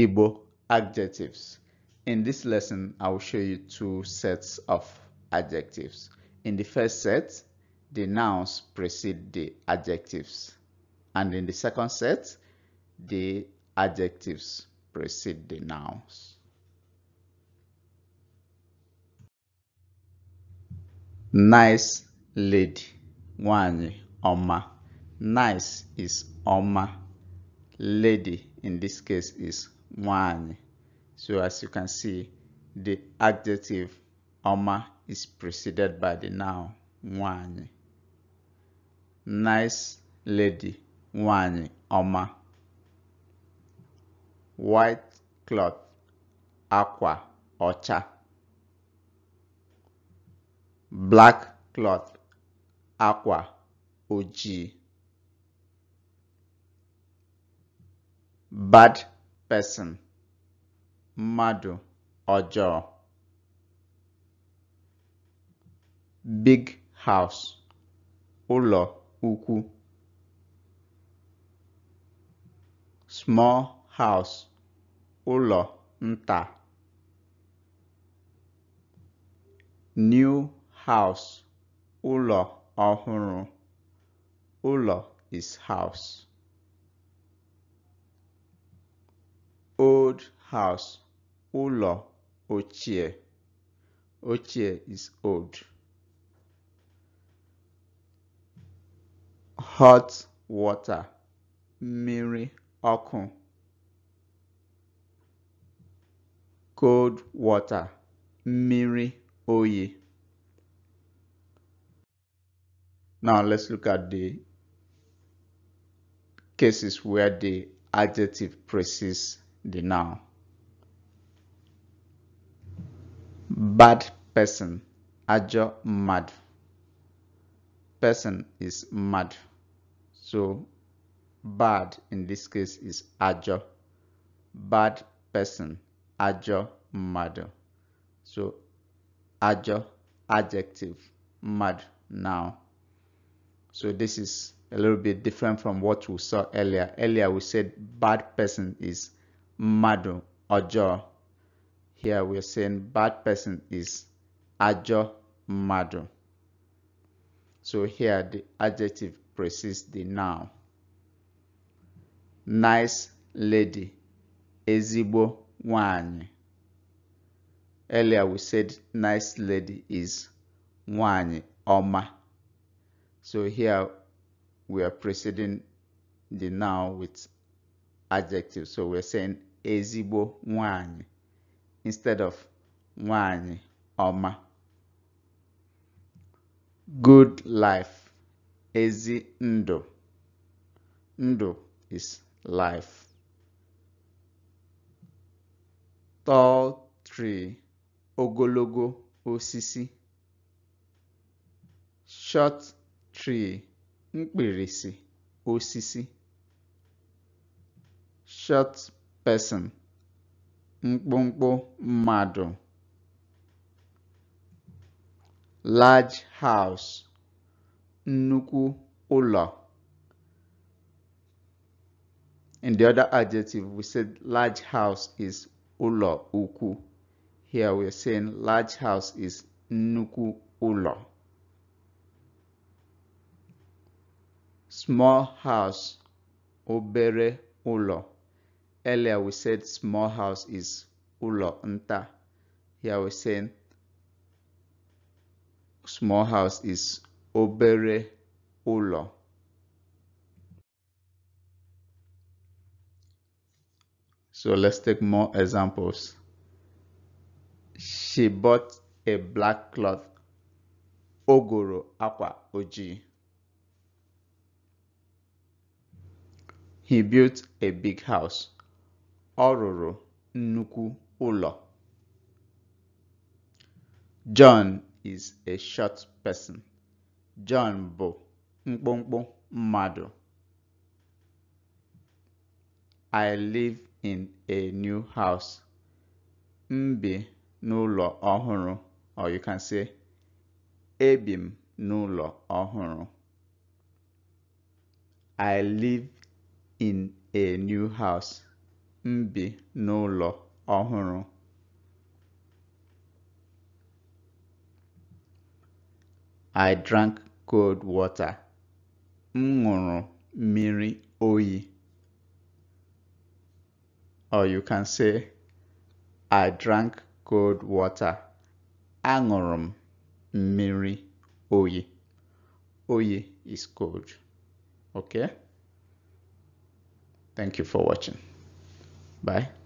Igbo adjectives. In this lesson, I will show you two sets of adjectives. In the first set, the nouns precede the adjectives. And in the second set, the adjectives precede the nouns. Nice lady, one Oma. Nice is Oma. Lady in this case is one. So as you can see, the adjective Oma is preceded by the noun one. Nice lady one Oma. White cloth aqua ocha. Black cloth aqua oji. Bad person mmadụ ọjọọ big house ụlọ ukwu small house ụlọ nta new house ụlọ ọhụrụ ụlọ is house old house ụlọ ochie ochie is old hot water Miri ọkụ cold water Miri Oye. now let's look at the cases where the adjective precedes the noun. Bad person, ajo mad. Person is mad. So bad in this case is ajo. Bad person, ajo mad. So ajo adjective, mad noun. So this is a little bit different from what we saw earlier. Earlier we said bad person is Madu ọjọọ here we're saying bad person is ajo madu. so here the adjective precedes the noun nice lady ezibo wan. earlier we said nice lady is wan ọma so here we are preceding the noun with adjective so we're saying ezigbo nwanyị instead of nwanyị ọma good life ezi ndụ ndụ is life tall tree ogologo osisi short tree mkpirisi osisi short person mkpụmkpụ mmadụ large house nnukwu ụlọ in the other adjective we said large house is ụlọ ukwu here we're saying large house is nnukwu ụlọ small house obere ụlọ Earlier we said small house is ulo nta. Here we're saying small house is obere ulo. So let's take more examples. She bought a black cloth. Ogoro aqua oji. He built a big house. ọ rụrụ nnukwu ụlọ John is a short person. John bụ mkpụmkpụ mmadụ. I live in a new house. M bi n'ụlọ ọhụrụ or you can say ebi m n'ụlọ ọhụrụ. I live in a new house. n'ụlọ ọhụrụ I drank cold water. M ṅụrụ mmiri oyi. Or you can say, I drank cold water. Aṅụrụ m mmiri oyi. Oyi is cold. Okay? Thank you for watching. Bye.